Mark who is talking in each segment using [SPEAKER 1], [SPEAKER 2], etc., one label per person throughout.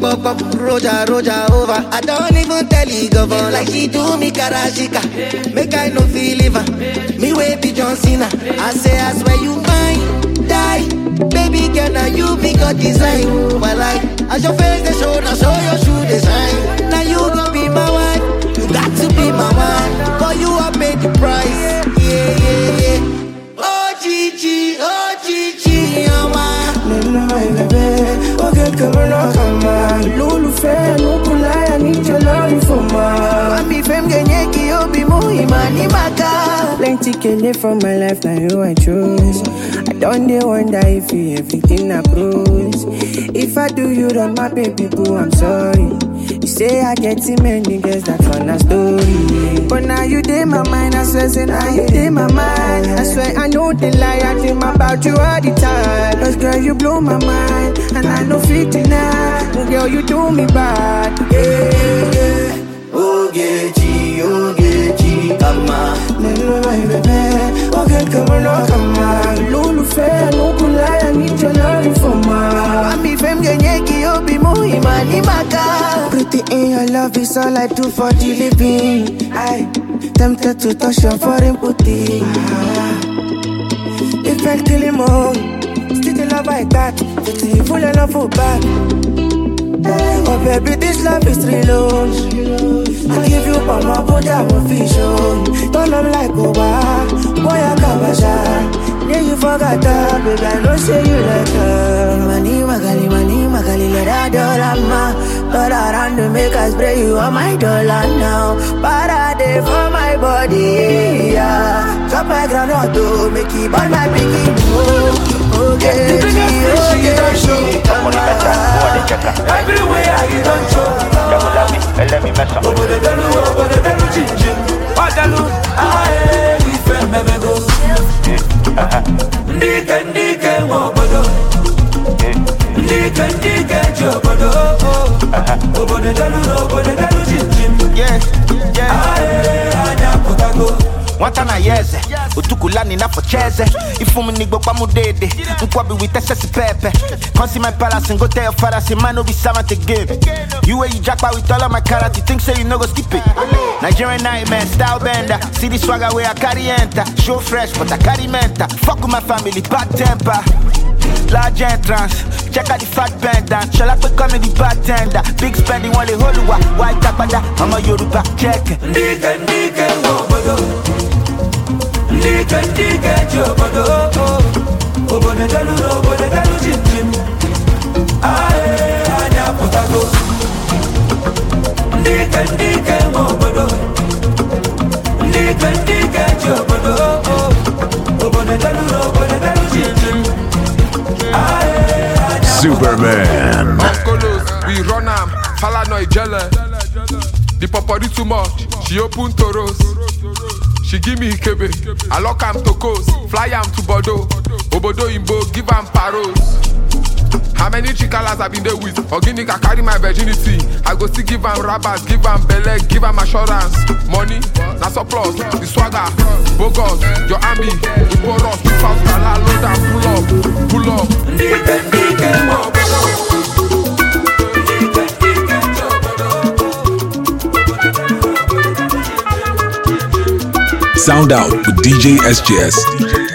[SPEAKER 1] bum
[SPEAKER 2] roja roja over. I don't even tell you govnor. like he do me karashika. Make I no feel liver, me way be John Cena. I say I swear you mine, die, baby girl na you be God design. Oh my life, as your face they show now show
[SPEAKER 1] your shoe design. Now you gon' be my wife, you got to be my wife, for you I paid the price. Yeah yeah yeah. kamara kama lólùfẹ́ nukulaya níjọlọ́rin fọmọ. Mami fẹ́m gẹ̀yẹ́ kí ó bí obi ìmọ̀ ní màkà. Plenty kele for my life na you I chose. I don dey wonder if you everything na prose. If I do you wrong my baby boo I'm sorry. say I get too many girls that run a story. But now you did my mind, I swear, say now you did my mind. I swear I know the lie, I dream about you all the time. Cause girl, you blow my mind, and I know 59. Well, girl, you do me bad. Yeah, yeah. Ogechi, Ogechi, kama Nelo bebe, oge kamono kama Lulu fe, anukulaya, nicho lori foma Ami fem genye ki obi muhima ni maka Everything in your love is all I do for the living. I tempted to touch your foreign booty. Ah. If I kill him all, still the love I got. It's evil and love back. Oh baby, this love is real. I give you all my body, I will fish on. Don't like Oba, boy I can't Yeah, you forgot her, baby. I know say you like her. Money, magali, money, magali, let her dollar ma. Dollar and to make us spray you on my dollar now. Parade for my
[SPEAKER 2] body, yeah. Drop my groundnut to make it burn my bikini. Oh,
[SPEAKER 1] okay, okay, okay. Everywhere you don't show. Double let let me eh, delu, over Obodo delu, chin chin. ndị ike ndị ike obodo ndị ike ndị ike ji obodo obodo delu na obodo delu jimjim aha anya pụtago nwata na ya eze otukulani na focheze ifumu n'igbo kpamudede nkwobi wit excess pepe consi my palace and go tell your father say man no be servant again you wey you japa with all of my character think say you no go skip it nigerian nightmare style bender see the swagger wey i carry enter show fresh but i carry mental fuck with my family bad temper large entrance check out the fat pendant shola pe come the bartender big spending wọn lè white tapada ọmọ yoruba check. ndíkẹ̀ ndíkẹ̀ wọ̀. ndị ike ndị ike ji obodo obodo delụrụ obodo delụ jimjim anyị apụtago ndị ike ndị ike nwe obodo ndị ike ndị ike ji obodo obodo delụrụ obodo delụ jimjim
[SPEAKER 3] Superman.
[SPEAKER 1] Okolos, we run am, Falanoi jele. The popori too much, she open toros. she give me ikebe i lock am to coast fly am to bodo obodo imbo give am paros. how many chikalas i been dey with ogini carry my virginity i go still give am rabat give am belle give am assurance money na surplus the swagger bogus your army iporos without gala load am pull up pull up.
[SPEAKER 4] Sound out with DJ SJS.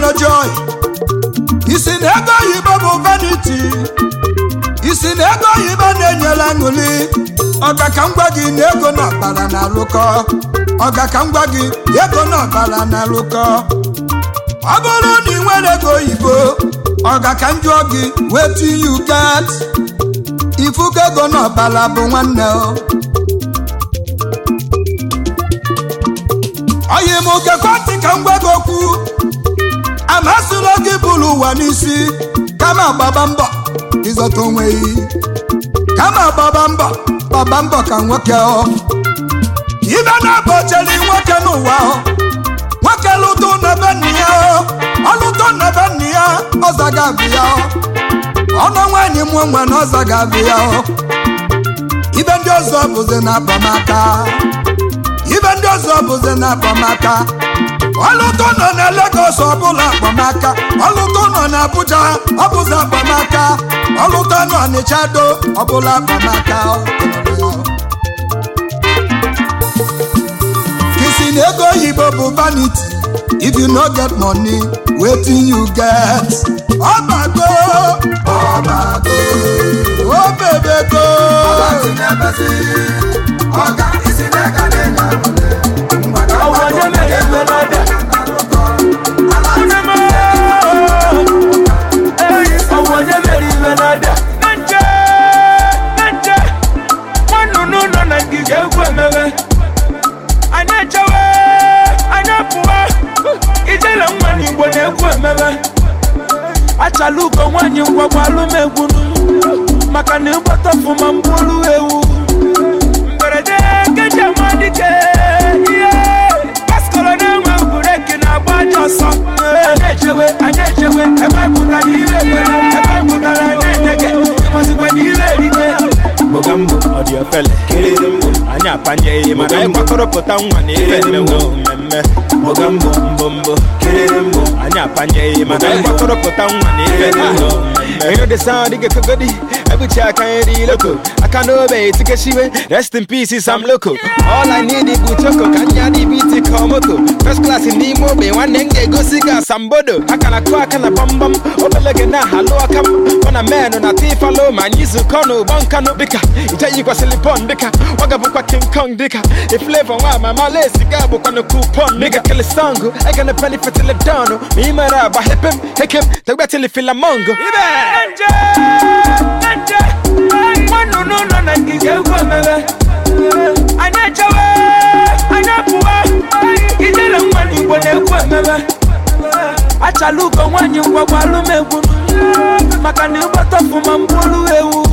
[SPEAKER 1] mere joy isi na ego oyibo bụ vanity isi na ego oyibo na-enyela aṅụli ọga ka na ego na ọbara na alụkọ ọga ka m ego na ọbara na alụkọ ọ bụrụ na ị nwere ego oyibo ọgaka ka gị wetin you get Ifu ego na bụ nwanne o amasịla gị bụrụ ụwa n'isi kama gbaba mbọ ịzọta onwe gị kama gbaba mbọ gbaba mbọ ka nwoke ọ ibe na-abụ chere nwoke n'ụwa nwoke lụtụ nebe nna ya ọlụtụ nebe nna ya ọza ga-abịa ya ọnụ nwaanyị mụọ nwe na ọza ga-abịa ya ibe ndị ọzọ bụzi na abamaka ibe ndị ọzọ bụzi na abamaka ọlụtụ nọ na Lagos ọbụla akpamaka ọlụtụ nọ na Abuja ọbụzi akpamaka ọlụtụ nọ n'Ịchado ọbụla akpamaka kisi na ego oyibo bụ vaniti if you no get money wetin you get ọbago ọbago obebego oh, na mgba eh, ijele nwa n'igbo na-egwu emebe achala uko nwaanyị ngwagwalụmegwu maka na ịgbata ọfụma mgburu ewu mberede nkeji amadike ihe paskọrọ na-enwe bureki na-agba aja ọsọ anyị echewe anyị echewe ebe pụtara ire egbere ebe pụtara na-edege ịmazikwa na ire erite gbogambụ ọ dị ofele anyị apanye ihe mana anyị nwa na ire mmewu mmemme mmemme mbọgambọ mbọmbọ kererembọ anyị apanyeghị mana mgbakọrọpụta nwa na ife dị ụlọ enyo dị sa dịga kogodi ebuchi aka nri loko aka n'obe etikeshiwe rest in peace sam loko all i need bụ choko ka anyị adị biti ka ọmoko first class n'ime ogbe nwanne m ga-egosi gị asambodo aka na kụ aka na gbamgbam obele gị na halụ aka m ọ na menụ na tifalo ma anyị zukọ n'ụgbọ nkanụ dịka ije yikwasịlị pọn dịka ọ ga-abụkwa king kong dịka iflevo nwa amama lesi ga abụkwanụ kup pump nigga kila sangu ega na pali fatila dano mima raba hip him hip him tagba tili fila mango ibe anje anje no no na kije uko mebe anya chawe anya puwa kije la mwani mbone uko mebe maka na ịgbọtọfu ma mbulu ewu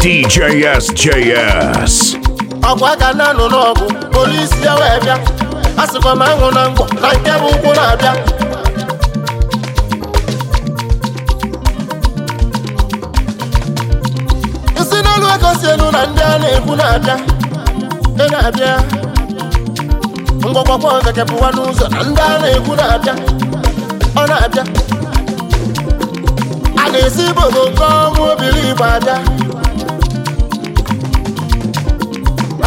[SPEAKER 3] DJSJS.
[SPEAKER 1] Ọkwa ka na anụ n'ọgụ polisi ya wee bịa asịkwa m anwụ na mgbọ na nke bụ ụkwụ na-abịa isi n'elu ego elu na ndị a na-ekwu na-abịa ị na-abịa mgbọgbọgba ọzọ pụwa n'ụzọ na ndị a na-ekwu na-abịa ọ na-abịa a na-esi ibodo nke ọnwụ obiri igbo abịa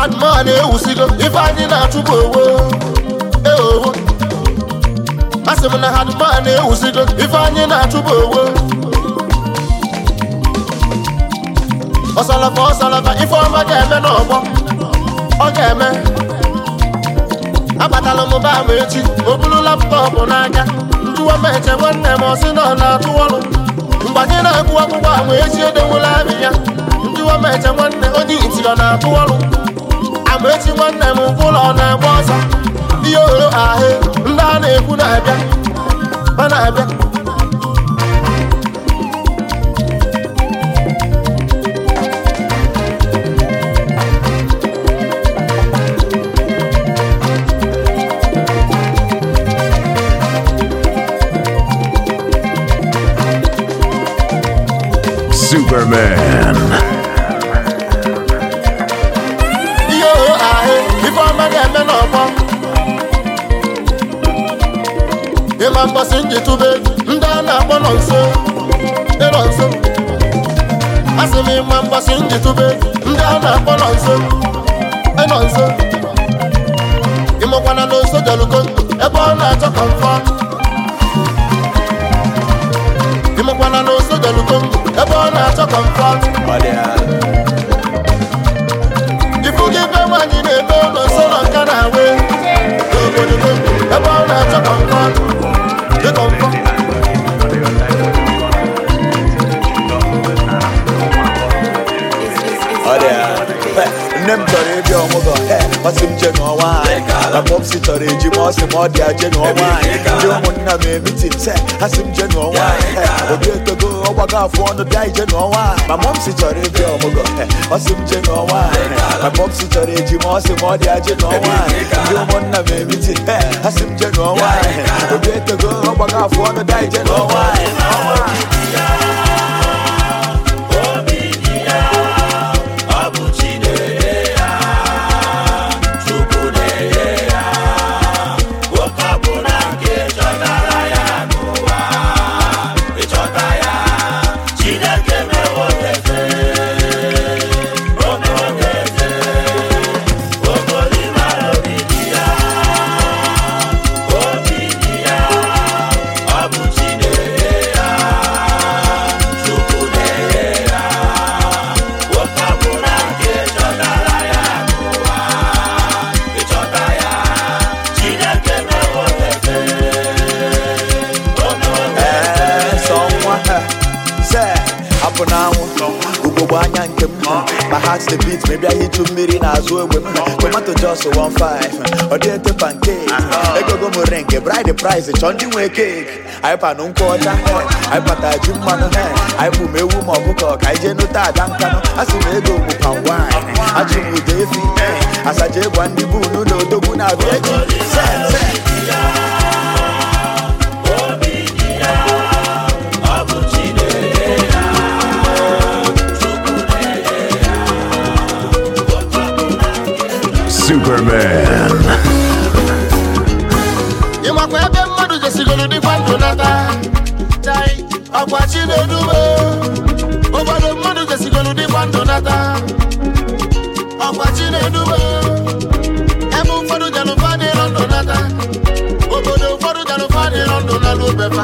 [SPEAKER 1] adụmọ na-ewusigo ife anyị na-achụpụ owo eowo a sị m na adụmọ na-ewusigo ife anyị na-achụpụ owo ọsalaba ọsalaba ife ọma ga-eme n'ọgbọ ọ ga-eme abatala m ba ama echi obulu buru laptọpụ n'aka njụwa m nwanne m ọsị na na-atụ ọrụ mgbanye na-agụ akwụkwọ ama echi edowela abị ya njụwa m eche nwanne onye iti ọ na-atụ ọrụ ama echi nwanne m nke ụlọ ọ na-agba ọsọ ihe oro ahụ ndị a na-ekwu na-abịa ọ na-abịa
[SPEAKER 3] Superman.
[SPEAKER 1] Yo, ahe, ife ọma ga-eme n'ọgbọ. Ịma mgbasị njitube ndị a na-akpọ nọ nso, nọ nso. Asị m ịma mgbasị njitube ndị a na-akpọ nọ nso, nọ nso. Ịmụkwana na oso jọlụko ebe ọ na-achọ ka Ịmụkwana na ọ na-achọ kọmfọm na-ebe ụlọ go go nka na awe n'obodo ebe ọ na-achọ kọmfọm nne m chọrọ ịbịa ọmụgọ ọsị m je n'ọnwa anyị maka ọpsi chọrọ eji m ọsị m ọ dị aje n'ọnwa anyị ndị ụmụnna m emitin se ha sị m je n'ọnwa anyị obi etogo ọgbago afọ ọnụ bịa ije n'ọnwa anyị ma mọmsi chọrọ ịbịa ọmụgọ ọsị m je n'ọnwa anyị maka ọpsi chọrọ eji m ọsị m ọ dị aje n'ọnwa anyị ndị ụmụnna m emitin ha sị m je n'ọnwa anyị obi etogo ọgbago afọ ọnụ bịa ije n'ọnwa anyị the beat maybe anyị chu mmiri n'azụ ogbe m tomato jos 15 ọ dị ete pancake egogo m ring bride price ndị nwee cake anyị panụ nkwụ ọcha pata ji mmanụ anyị m ewu ma ka anyị jee nụta ada nkanụ a pan wine ndị bụ na odogwu
[SPEAKER 3] Superman.
[SPEAKER 1] ebe mmadụ jesigoro dịkwa ndụ nata ọkwa Chinedume obodo mmadụ jesigoro dịkwa ndụ nata ọkwa Chinedume ebe ụfọdụ janụfa dịrọ ndụ nata obodo ụfọdụ janụfa dịrọ ndụ nala obefa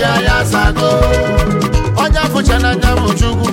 [SPEAKER 1] ya ya sago onye afụcha n'anya bụ Chukwu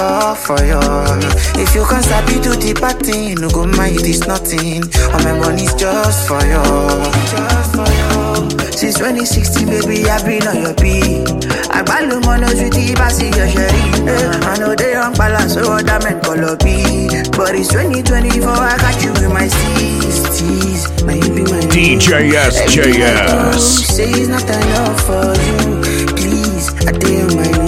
[SPEAKER 1] all for you. If you can't sabi do the party, no go mind this nothing. All my money's just for you. Since 2016, baby, I've been on your beat. I value monos with the passy, your sherry. Eh, I know they on balance, so that man
[SPEAKER 3] color be.
[SPEAKER 1] But it's 2024, I got you in my 60s.
[SPEAKER 3] Now you be my DJ SJS. Say it's not enough for you. Please, I did
[SPEAKER 1] my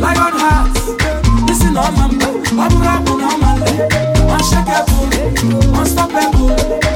[SPEAKER 1] lion heart na ọma mgbe ọ bụrụ abụ na ọma nle unshakable unstoppable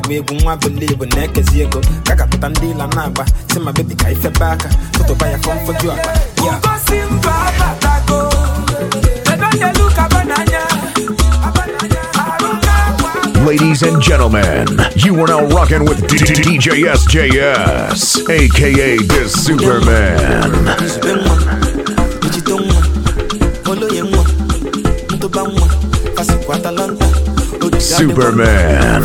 [SPEAKER 1] tewe egwu nwa belivu na-ekezi ego ka gapụta ndị ịla na-agba si ma bebi ka ifebe aka tụtụba ya fọmfoju akpa
[SPEAKER 3] Ladies and gentlemen, you are now rocking with DJ SJS, aka the Superman. Superman.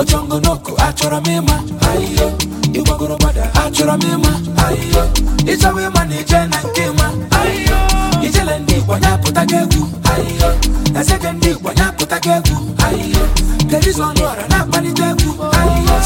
[SPEAKER 1] ochongonoko achọrọ m ịma ịgbagoro gbada achọrọ m ịma ịchọwa ịma na ije na nke ịma ijele ndị igbo nyapụta gị egwu eze gị ndị igbo nyapụta gị egwu kedu izu ọnụ ọra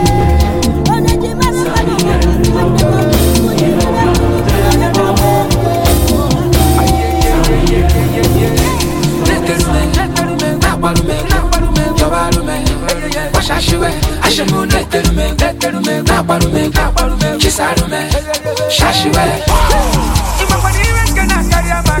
[SPEAKER 1] Ị If I'm for the rest, can I carry a man?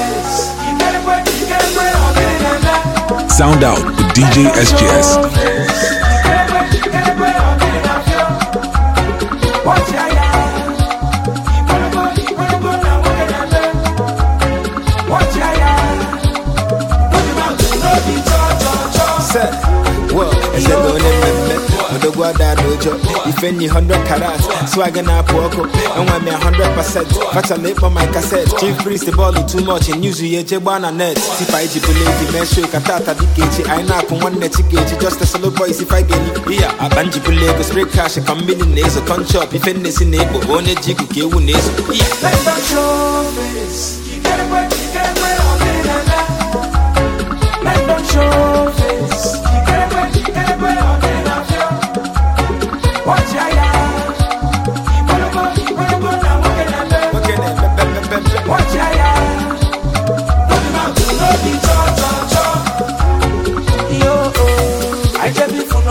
[SPEAKER 4] Sound out with DJ SGS.
[SPEAKER 1] major. If any hundred carat, na poco, and when me a hundred percent, fat a lip on my cassette. Chief priest the ball too much and use you chebana net. If I jibulate the men shake a tata dikage, I nap on one net ticket, just a solo boys if I get it. Yeah, a banjibulate go spray cash, a come millionaires, a conch up, if any sin one jig,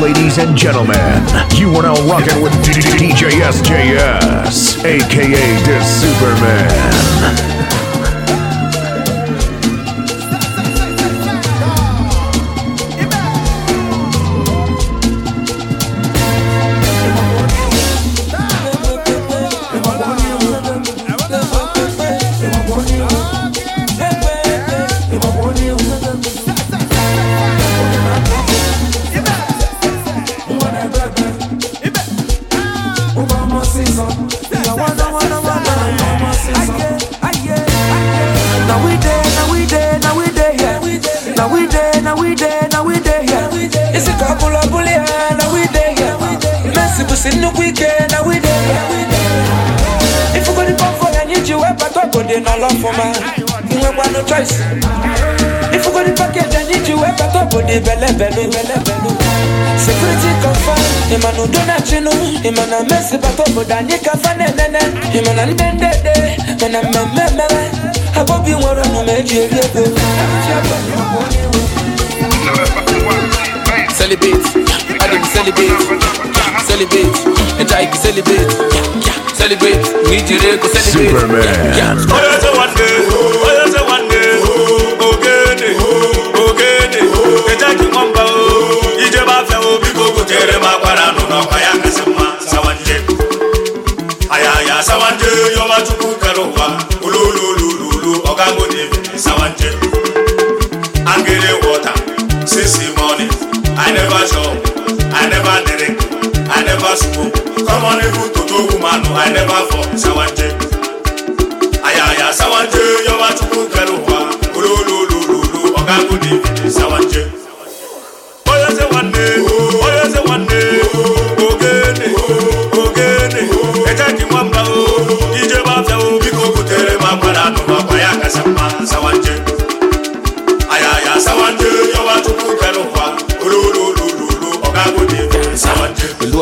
[SPEAKER 3] Ladies and gentlemen, you are now rocking with DJ SJS, aka the Superman.
[SPEAKER 1] ịma na udo na-achịnụ ịma na mmesịbata obodo anyị kafa na mana ịma na ndị ndede mana mmemme nwere eji eri ego Celebrate, I didn't celebrate. Celebrate, and I can celebrate. Celebrate, we did it,
[SPEAKER 3] celebrate. Superman.
[SPEAKER 1] a bara nuna ya kasin mma sawanje ayaya sawanje yoma tuku karowa ululululu ogago ne sawanje angere water sisi money i never shop i never drink i never smoke come on even to i never sawanje ayaya sawanje yoma tuku karowa ululululu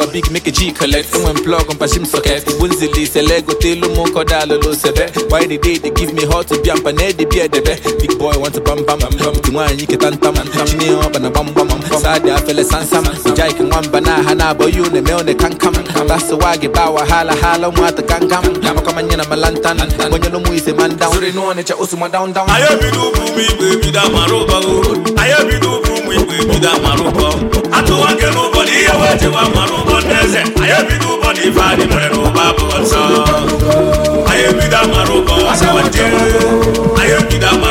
[SPEAKER 1] a big make a G collect Who and plug on Pashim socket Wunzili Selego Telo Moko Dalolo Sebe Why the day they give me hot to be and panel eh, the beer debe Big boy want to bam bam bam Tumwa nyike tantam Chime up and a bam bam Sade afele sansam Ujai ki mwamba na hana boyu ne meo ne kankam Basa wagi bawa hala hala kama nyena malantan man atụwa nke m ụbọchị ihe wee mmanụ ụgbọ eze anyị ebido ụbọchị ife anyị mere bụ anyị ebido amara ụbọ anyị ebido amara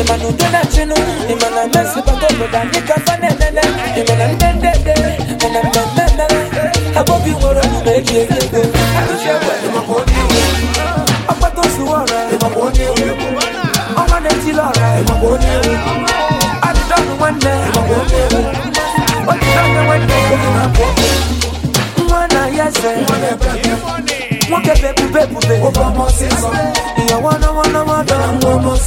[SPEAKER 1] imana udona chinu imana mesi bagogoda nikafanenene imana ndendede mana mmemmemere abobi nwere na eji eri ego ọkpata osuwa na-etili ọra adịdọnụ nwanne odidọnụ nwanne nwa na ya eze nwoke bụ ebube ebube ịyọwana wana wana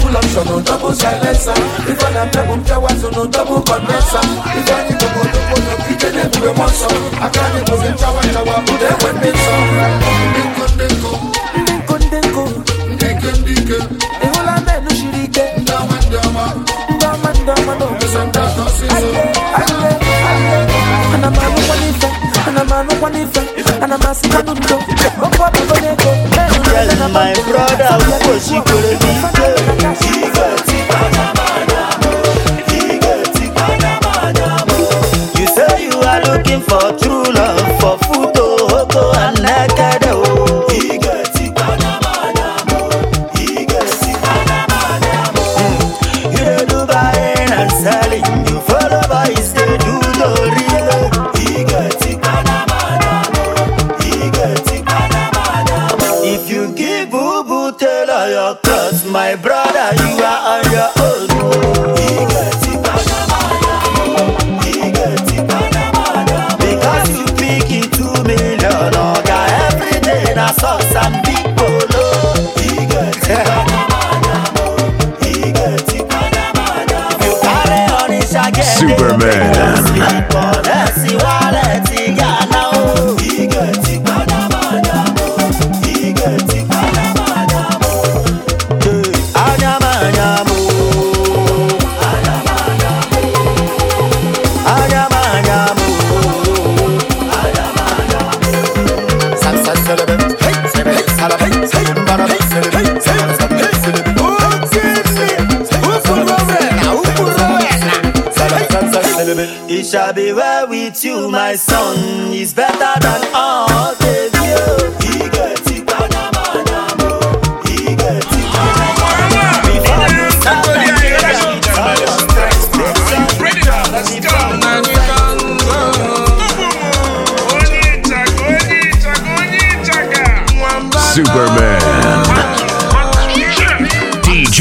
[SPEAKER 1] Full option on double silencer. If I am double towers on double condenser. If I need to go double no kitchen every one anụkwa ana m asịkwa n'udo ọkwa bụgo n'ego my brother, what she could have been.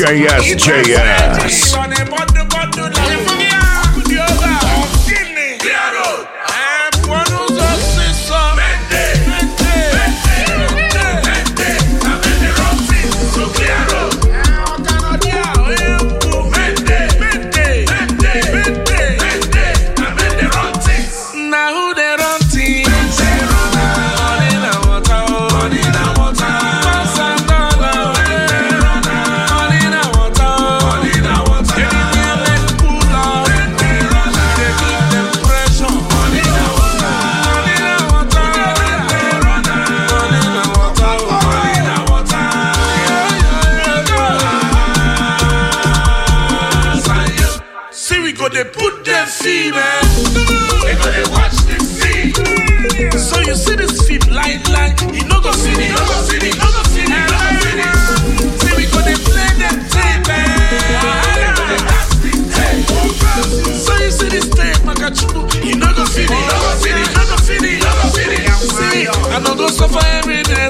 [SPEAKER 3] JSJS. JS.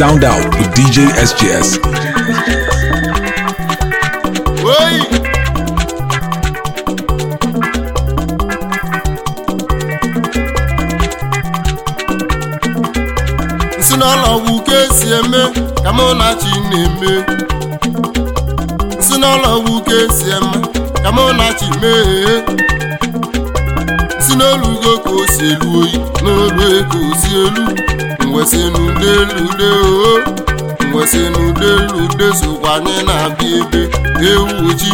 [SPEAKER 4] Sound out with DJ SGS.
[SPEAKER 1] Oi! si ka esi eme ka mụ na chi na-eme si n'ụlọwu ka esi eme ka mụ na chi mee si n'olugo ka o o elu nwesị n'ude lude o oh. nwesị n'ude lude na-abịa ebe ewu chi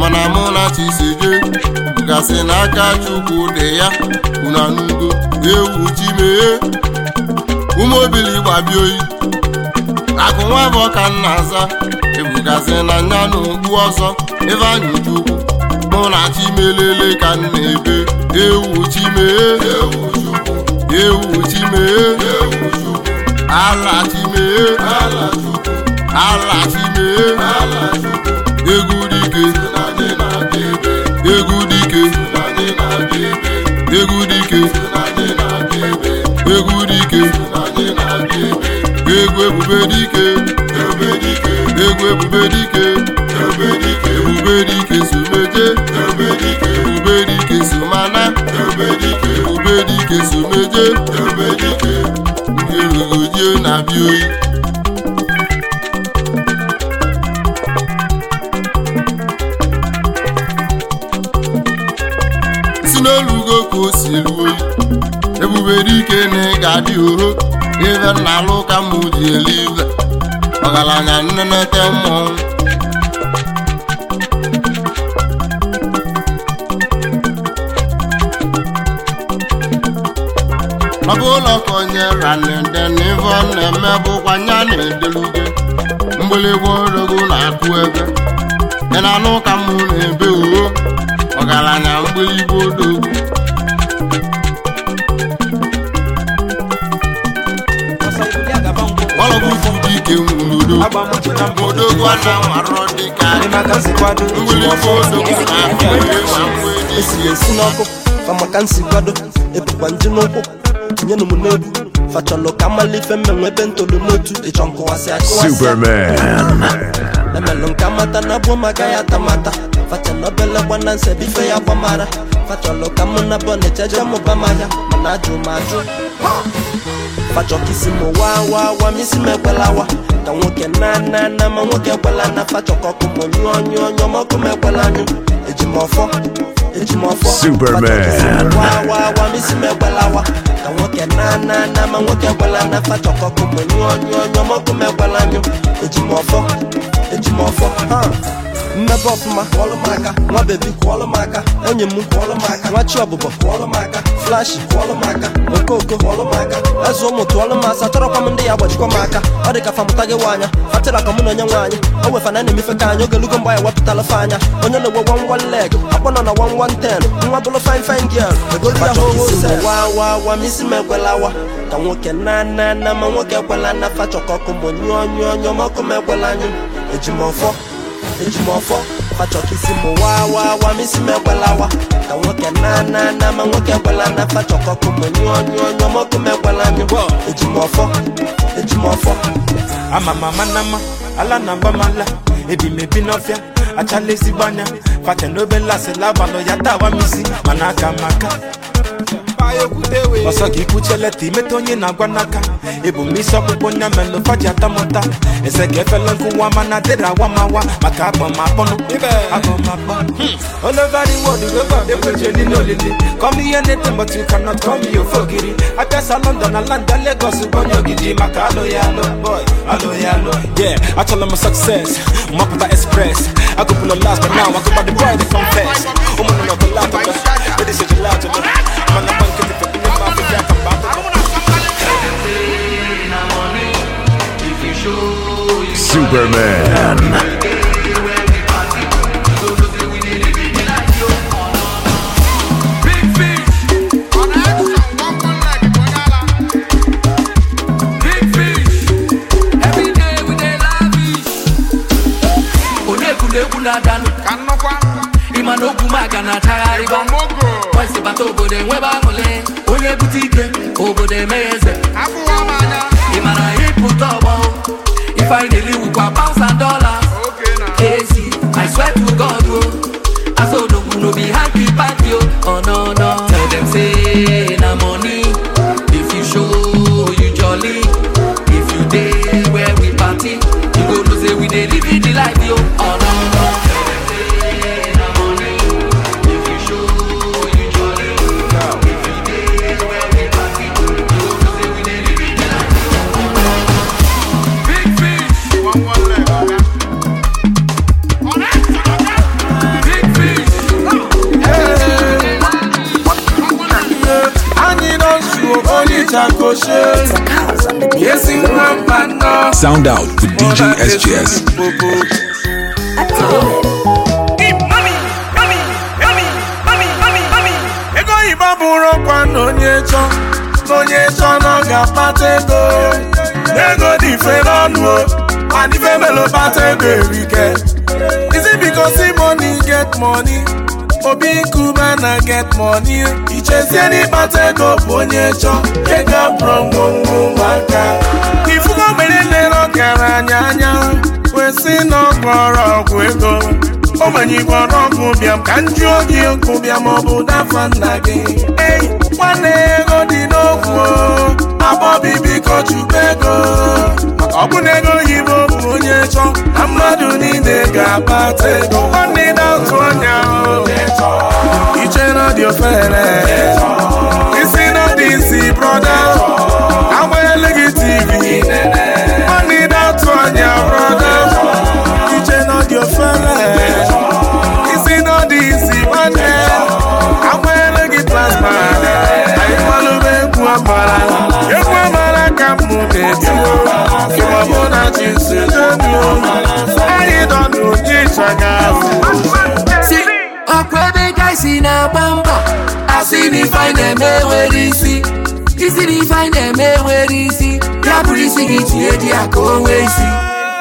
[SPEAKER 1] mana mụ na chiseje gasị n'aka chukwu dị ya una n'udo ewu chi mee ụmụ oyi akụ nwa bụ ọka nna aza ebugasị na nya na okpu ọzọ ebe anyị chukwu mụ na chimelele ka nna ebe ewu chi ewu chi mee ala chi mee ala chi mee egwu dike egwu dike egwu dike egwu dike egwu ebube dike egwu ebube dike ebube dike obedike so mana obedike obedike so meje obedike ndị rugodie na-abịa si n'olugo ka o si ruo oyi ebuberike na ị ga-adị oho ive na alụ ka mụ ji elive ọgaranya nnenete mmọnwụ maka ụlọ ka onye ranede n'ive na-eme bụkwa nya na-edeluge mgbịlịgba na-akụ ebe dị na anụ ụka mụ na-ebe uwe ọgaranya mgbịlịgba odogwu ọlọgwụ dike nwurudo odogwu ana warọ dịka mgbịlịgba odogwu na-akụ
[SPEAKER 2] na-esi esi esi nsi ebukwa n'ụkwụ nyenụ m n'obu fachọlụ ka mmalụ ife mmenwe ebe ntolu n'otu ịchọ nkụwasị akụwasị emelụ nke amata na abụọ maka ya atamata fachala obele gbana nsebe ife ya gbamara fachalụ ka mụ na bọ na-echeje mụba manya mana ajụ m ajụ fachọkisi m wa wa wa misi m ekwelawa ka nwoke na na na ma nwoke ekwela na fachọkọkụ m nyụọ nyụọ nyụọ mọkụ m ekwela anyụ eji m ọfọ
[SPEAKER 3] Superman.
[SPEAKER 2] Wa wa wa misi me gbala wa. Ka nwoke na na na ma nwoke gbala na fa chọkọ kụ mụ nyụọ nyụọ nyụọ mọkụ me gbala nyụ. mmebe ọfụma kwọlụ m nwa bebi kwọlụ m onye m kwọlụ m aka nwachi ọbụbọ kwọlụ m aka flashi kwọlụ okoko kwọlụ m aka eze ụmụ tụọlụ m asa tọrọkwa m ndị ya agbajikwa m aka ọ dị ka famụta gị nwaanya fatịra ka mụ na onye nwaanyị o wefana na-emefe ka anyị ogelugo mgba ya wepụtala fa anya onye na-egwe wan wan leg akpọ nọ na wan wan ten nwa bụrụ fine fine girl egolu ya hohosewawawa m isi m ka nwoke na na na ma nwoke ekwela na fachọkọkụ mụ nyụọ nyụọ nyụọ ma ọkụ m ekwela anyụ eji ejimọfọ fachọkisi m waa waa waa misi m ekwelawa ka nwoke na na na ma nwoke ekwela na fachọkọkụ m nyụọnyụọnyọmọkụ
[SPEAKER 1] m ekwela nyụ ejimọfọ ejimọfọ ama m ama na mma ala na mba m ala ebi ebi n'ọfịa achala ezigbo anya fate n'obe nlasị labalụ ya tawa m isi mana aka m aka ọsọ gị kwucheleta imeta onye na-agwa n'aka ebumisi ọkpụkpọ onye melụ faji atamụta eze ka efela nkụwa mana dịrị awamawa maka agbamapọnụ agbamapọ hmm. all over the world weba ekweje niile olili come ihe na-ete but you cannot come here ofe ogiri apịasa london na landa lagos onye ogidi maka alụ ya alụ boy alụ ya alụ yeah achọla m success mapụta express agụpụla last but now agụpa the boy the confess ụmụnụ nọ bụ latọ mana
[SPEAKER 3] Superman. egwu na
[SPEAKER 1] na obodo enwebe onye bute ike obodo emeghe eze ịpụta ọgbọ if I dey live with pounds and dollars. Okay, nah. AC, I swear to God, oh. I so no no be happy party, oh. Oh no no, tell them say.
[SPEAKER 4] Sound out with DJ SGS.
[SPEAKER 1] ego ọkwa na onye chọ na onye chọ na ọ ga ego ego dị mfe n'ọnụ melo ego erike isi biko si get obi na get money ichezie ego bụ onye chọ ego ogbenye na-ere ọgaranya anya kwesị na ọgwụ ego ogbenye igbo ọnọgwụ bịam ka nju oge ụkwụ bịam ọ bụ dafa nna gị ei nwanne ego dị n'okwu abọbi biko chukwu ego ọ bụ na ego oyibo bụ onye chọ na mmadụ niile ga-akpata ego nwanne na otu ọnya iche na dị ofere dịsi brọda agbanyela gị tv ọnị datụ anya iche na ọ isi na dị isi nwanne gị plasma anyị malụba egwu amara egwu amara ka m na-etio ịmọmụ na jinsi donu anyị dọnụ ebe gaisi na-agba mbọ sị na ife eme nwere isi isi na ife eme nwere isi ya bụrụ isi gị tinye dị ya ka o isi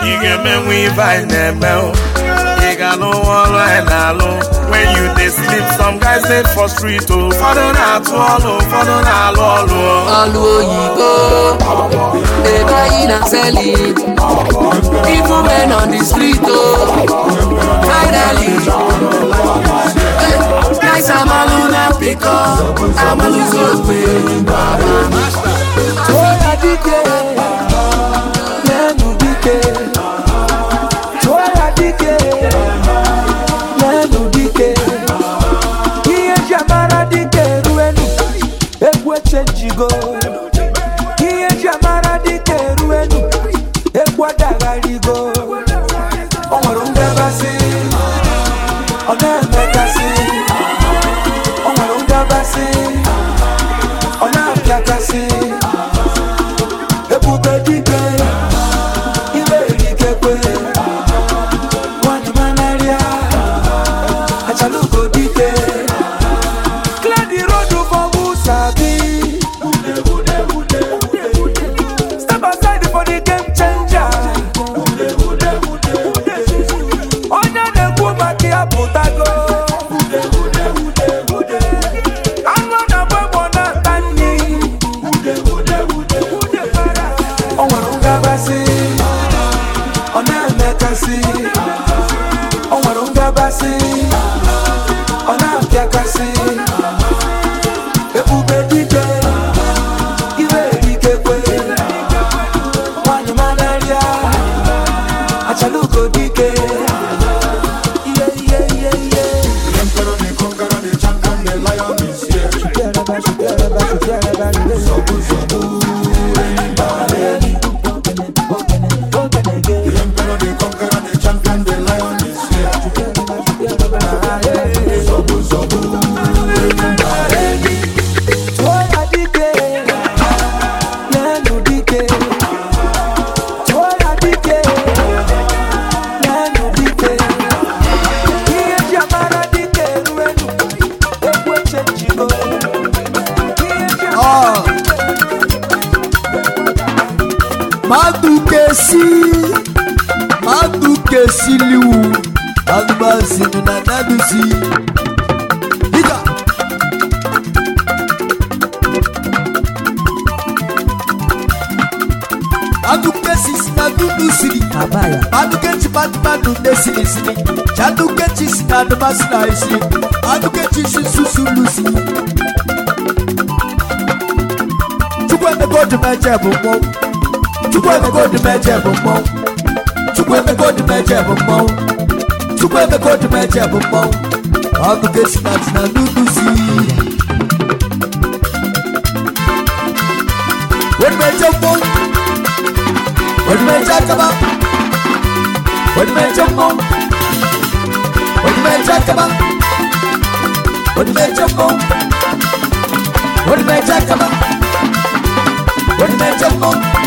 [SPEAKER 1] ị ga-emenwe ife eme ị ga-anụ ọrụ na-alụ when you dey sleep some guys dey for street o ụfọdụ na-atụ ọlụ ụfọdụ na-alụ ọlụ ọlụ oyibo ebe anyị na-aseli ifu men on the street o oh. finally Rice amalu na piko, amalu zobe Oya dike, nenu dike Oya dike, nenu dike Iye jamara dike ruenu, ekwe chenjigo isi mmadụ kesiliwu anụmazinu na naduzi dịka si na dudusiri adukechi patumadu nesilisiri chadukechisi na anụmasina isi si susulusi chukwuemeka ojumeche bụ mmọnwụ chukwu emeka odimeje bụ mmọnwụ chukwu emeka bụ mmọnwụ chukwu emeka bụ esi na dị na akaba akaba akaba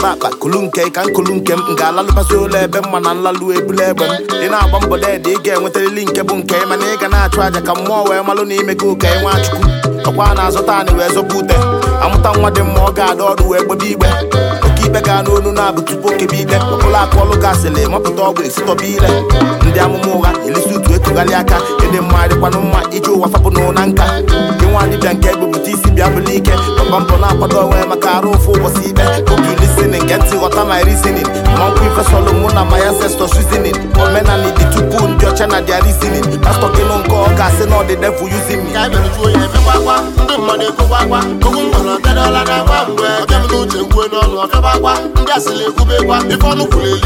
[SPEAKER 1] ebe akpa kulu nke ka nkulu nke m ga-alalụbasị ụlọ ebe mma na nlalụ ebula egbe m dị na-agba mbọ deede ị ga-enwetarịrị nke bụ nke mana ị ga na-achụ aja ka mmụọ wee malụ na ime gị ụka ịnwe achukwu ọkwa na-azụta anyị wee zọba ute amụta nwa dị mma ọ ga-ada ọdụ wee gbebe igbe oke ibe ga n'onu na-abụ tupu okebe ide ụlọ akụ ọlụ gasịrị mapụta ọgwụ esitọba ile ndị amụma ụgha elisi utu etugharị aka ịdị mma dịkwanụ mma iji ụwa fapụnụ nka ịnwa dịbịa nke egbe pụta isi bịa ike papa mpụ na-akwado onwe maka arụ ụfụ ụbọchị ikpe oge lisinin nke ntị ghọta na risinin mmankwụ ifesolụ mụ na maya sesto shuzinin omenala dị tupu ndị ọcha na dia arisinin pastọ gịnụ nke ọ ga-asị na ọdịde fụ yuzin mmadụ na-agba mgbe nkwue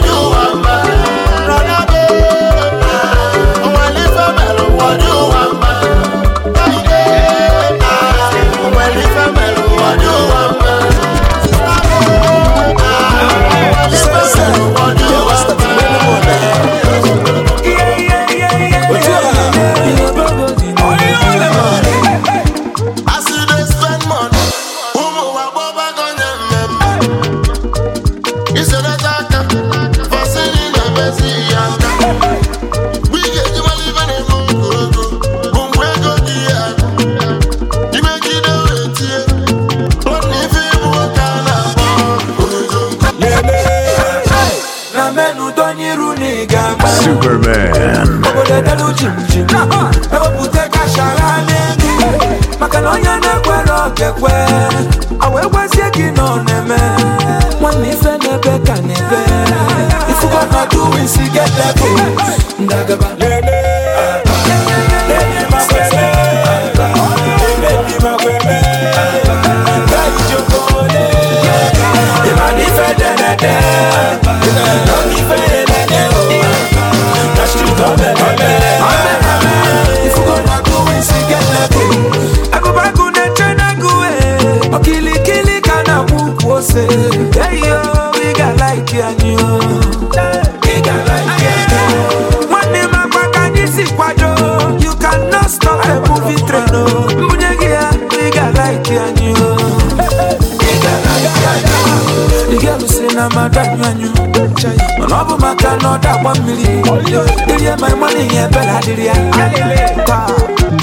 [SPEAKER 1] n'ọnụ What
[SPEAKER 3] Superman
[SPEAKER 1] obodo dara chimchim ewepụta n'elu maka na onye na-ekwere okekwe awa ekwezie gị na ọ na-eme nwanne ife na-ebe ka na-ebe na ndagaba Kilikili ka na-akpọ ukwu ose eyo ị ga-alaiki anyị nwanne m akpa ka anyị si kwado you can not stop a movie train o mbunye gị ya ị ga-alaiki anyị ị ga-alụsiri na mmadụ anyụ anyụ mana ọ bụ maka na ọ agba mmiri irie ma ịmanụ ihe ebela adịrị ya taa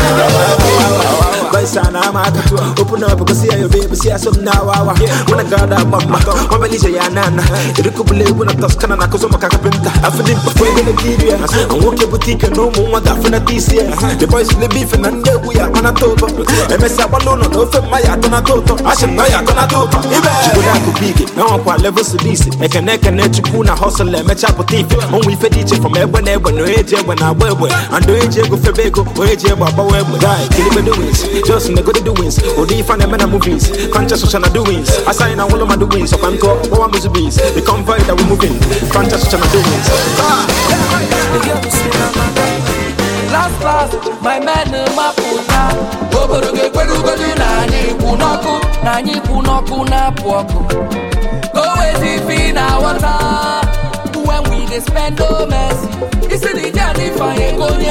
[SPEAKER 1] aa aa voice and I'm out. Open up na see your baby, see some now. When I got up, mama, na belly's na ụmụ You could believe when I toss Canada, cause I'm a carpenter. I feel it before you're na ya na I'm walking boutique no more than for this year. The boys and we are a top. MS Abalona, no for my atona toto. I should buy atona toto. If I could have big, now level hustle we from no age when I wear. And do age go age kill Sales in the good doings. Odi fan and movies. Conscious social doings. Assign a wall of my doings. Of Anko, all my bees. The convoy that we're moving. Conscious social doings. Last class, my man, uh, my puta. Obodo ga-ekwere ugodu na anyị ikwu n'ọkụ
[SPEAKER 2] na anyị ikwu n'ọkụ na-apụ ọkụ.
[SPEAKER 1] Go wezi fi na water. When we dey spend no mercy. Isi na ije anyị fanye ego onye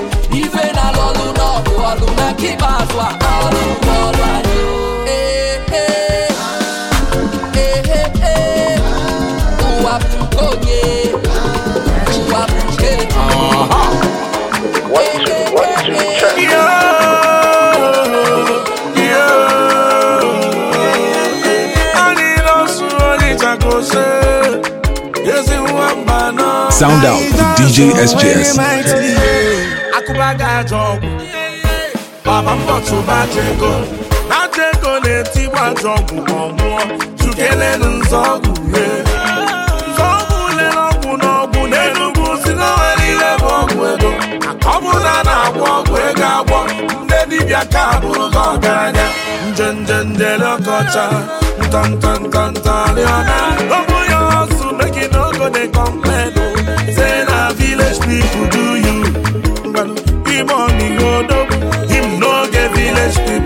[SPEAKER 1] luna kibazwa alu olwanyo uwaptukonye uwaptuke Yeah.
[SPEAKER 4] Sound out with DJ SJS.
[SPEAKER 1] baba m bọtụbaja ego aja ego na-eti gbaji ọgwụ ma ọ nwụọ chukelenu nzọọgwụ rie nzọọgwụ ule n'ọgwụ n'ọgwụ n'enugwu si n'ọnwa niile bụ ọgwụ ego ọ bụla na agwọ ọgwụ ego agwọ ndị dibịa ka bụrụ gị ọgaranya njenje njele ọkọcha ntọntọntọntọrịọna ọ ya ọsụ meki ogo dị kọmplenụ oh. say na village people do you igbo ọmịgo odogwu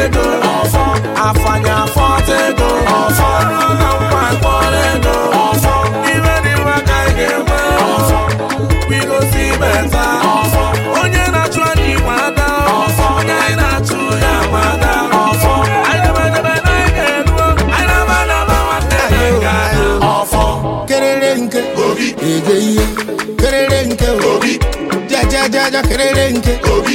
[SPEAKER 1] ego ọfọ afanya afọta ego ọfọ na mma ego ọfọ iwe dị mma ka ị ga-enwe ọfọ beta ọfọ onye na-achụ anyị ọfọ onye anyị na-achụ ya ma ọfọ kerere nke obi ihe kerere nke obi jajajaja kerere nke obi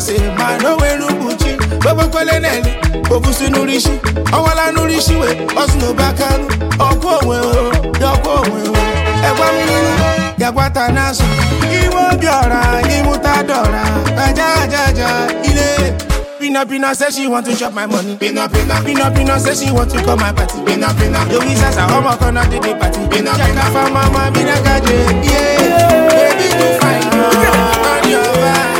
[SPEAKER 1] ose ma n'onwere ụbụchi gbogbokoleneli obusi n'urishi ọwala n'urishi we ọsụ n'obakanụ ọkụ onwe dọkwa onwe egwa mmiri gagwata n'azụ iwe obi ọra ịmụta dọra aja aja aja ile Pina Pina says she want to chop my money. Pina Pina Pina Pina says she want to call my party. Pina Pina Yo isa sa ọmọ kan náà dédé party. Pina Pina Jaka fa mama Pina Gaje. Yeah, baby you fine. On your back.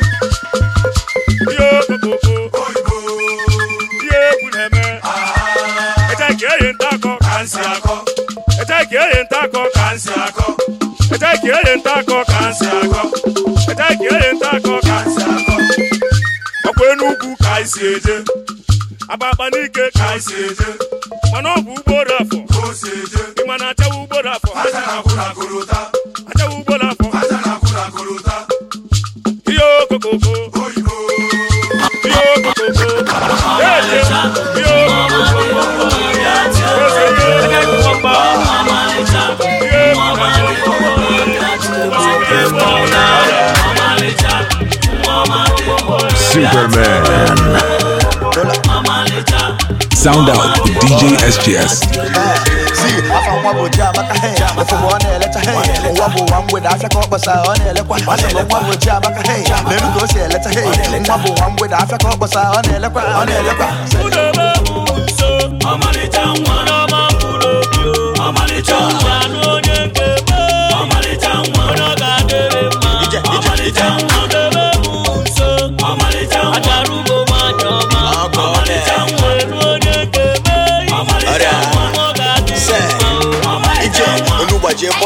[SPEAKER 1] nsị akọ ka nta akọ ka eche ka anyị eje n'ike ka anyị eje mana ọ bụ ugboro afọ na achawa afọ
[SPEAKER 4] Superman. Sound out DJ SGS.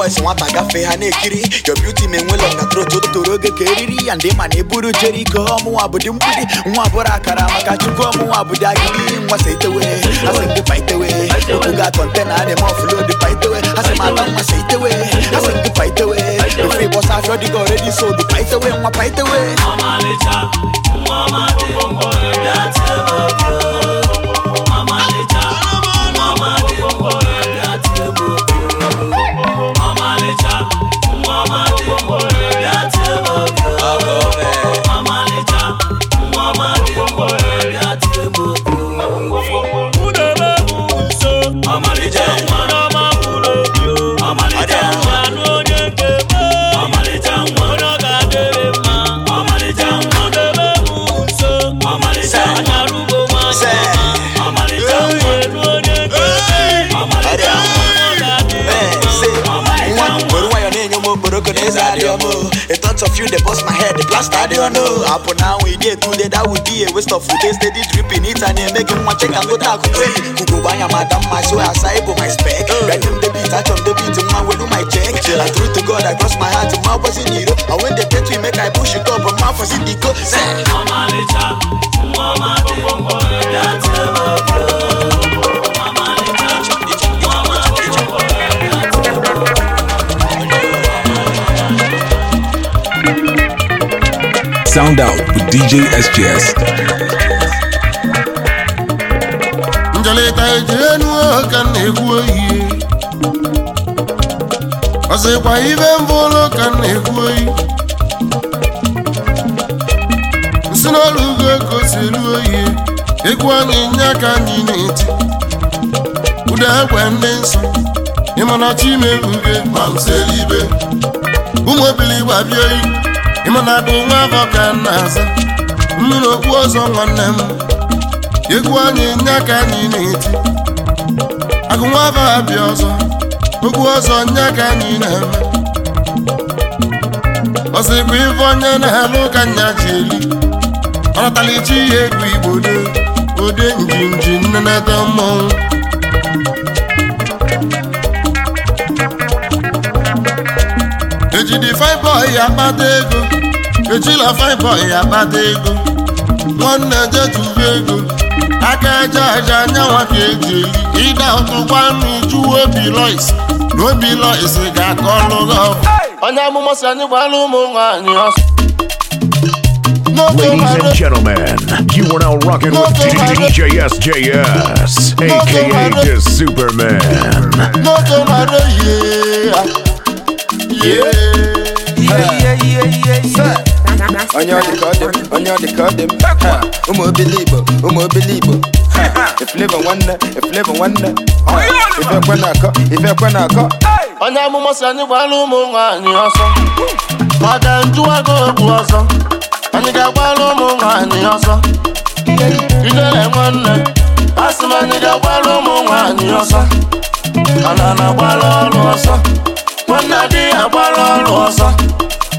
[SPEAKER 1] boys nwata gafee ha na-ekiri your beauty ma enwela ọngatrot otoro oge ka eriri ya ndị ma na eburu jeriko ọmụnwa abudi mgbidi nwa bụrụ akara maka chukwu ọmụnwa bụdị agidi nwasa itewe asị ndị paitewe okwu ga kọntena adị ma ọfụlod paitewe asị m ata asị ndị paitewe ofe ịbọsa afịọ dịga oredi sold nwa paitewe front of you, they bust my head, they plaster, they don't know. Up now, we did that would be a waste of food. They steady dripping it and they making check go talk Kuku madam, my soul, my spec. Random the beat, touch on the beat, man, do my check. to God, I cross my heart, my was in And when they to make I push it up, my for city go. Say, Mama, Mama, Mama, Mama, Mama, Mama, Mama, Mama, Mama, Mama,
[SPEAKER 4] Sound Out with DJ SGS. ka
[SPEAKER 1] na-egwu oyi ọzọkwa ibe ụlọ ka na-egwu oyi nsị n'ọrụ ugo kosiri oyi egwu anyị nye aka anyị na-eti ụda egwe ndị nsọ Imeru chimeruge ma ibe ụmụ ebili gbabie oyi ịmana bụ nwa afọ ka na-aza mmiri okpu ọzọ nwanne m egwu anyị nye aka anyị na-eti agụ nwa afọ abịa ọzọ okwu ọzọ nye aka anyị na-eme ọsị bụ onye na-alụ ka nya ji eli ọnatalichi ihe egwu igbo de ode njinji nnenata mmọnwụ ejidi fibọ ya akpata ego ejila fine boy akpata ego nwanne jejubi ego aka eje aja anyanwa ka eji eli ịda ọtụ ga-aka ọlụ gị onye amụma si anyị
[SPEAKER 3] gbara ụmụ nwaanyị ọsọ Ladies and gentlemen, you are now rocking with aka the Superman.
[SPEAKER 1] onye ọ dị onye ọ dị ụmụ obere igbo ụmụ obere igbo nwanne nwanne na na-akọ onye amụma si anyị gbara ụmụ anyị ọsọ ọ ga-njụwago egwu ọsọ anyị ga-agbara ụmụ nwaanyị ọsọ nwanne asị m anyị ga-agbara ụmụ ọsọ ana na ọrụ ọsọ nwanne ọrụ ọsọ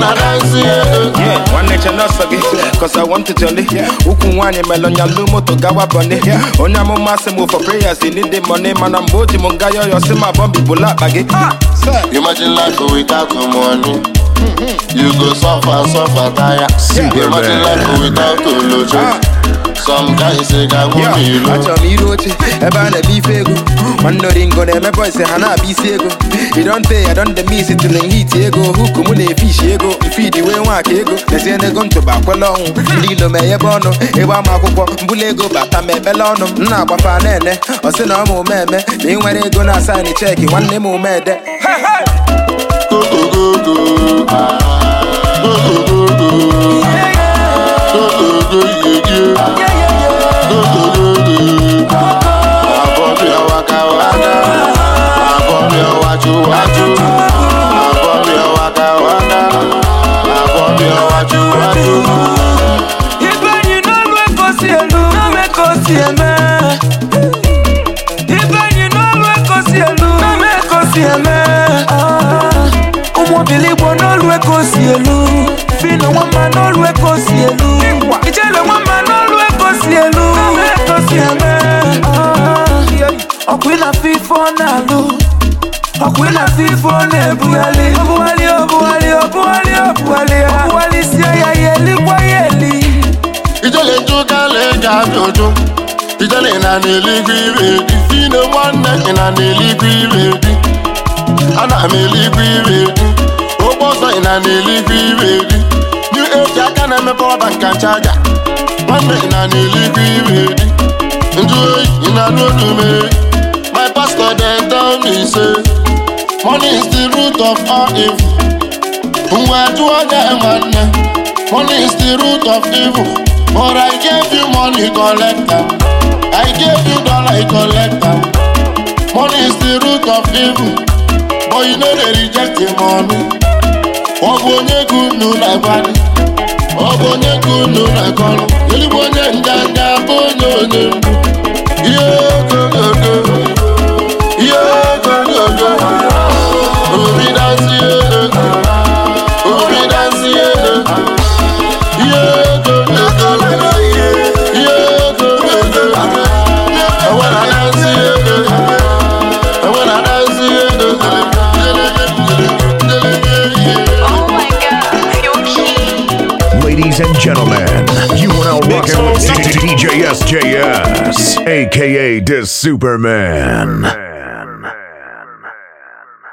[SPEAKER 1] nwanne che n'ọsọ gị cause I want to jolly ukwu nwaanyị melonya lu moto gawa bọni onye amụma sị m for prayers you need the money mana mgbe o ji m nga yọyọ si ma bọmbi bụla akpa gị Imagine life without money mm-hmm. You go suffer, suffer, tire Imagine life without olojo ah. achọrọ m iru oche ebe a na-eme ife ego mandoringo na-emepe ise ha na-abịa isi ego idonte ya donde mis tilin ego huku mụ na-efishi ego mfidi wee nwaka ego lezie n'ego ntụba kwele ọnwụ ndị ilo meghebe ọnụ ebe ama akwụkwọ mbụla ego bata ma ekpele ọnụ m na-agbafa na-ene ọsị na ọma omeme na nwere ego na asaịnị cheki nwanne m omede Go, ah, n'olu eke o si elu fino nwamba n'olu eke o si elu ijele na-alụ ọ na-ebugharị obugharị obugharị obugharị obugharị obugharịsie ya ya ya eli ijele ijele na n'eluigwe ire dị na-agba ọsọ ị na na-eligwe iwe eri new age aka na-emepe ọba nka nchaja nwanne ị na na-eligwe iwe eri njụ oyi ị na-anụ olu mee my pastor dem tell me say money is the root of all evil mgbe jụọ ya nwanne money is the root of evil but i gave you money collect am i gave you dollar I collect money is the root of evil but you no dey reject the money. ọ bụ onye ego unu na-agbalị ọ bụ onye ego unu na-akọrọ eluigwe onye nganga bụ onye onye mgbu ihe
[SPEAKER 3] Ladies and gentlemen, you are now rocking with DJSJS, aka This Superman.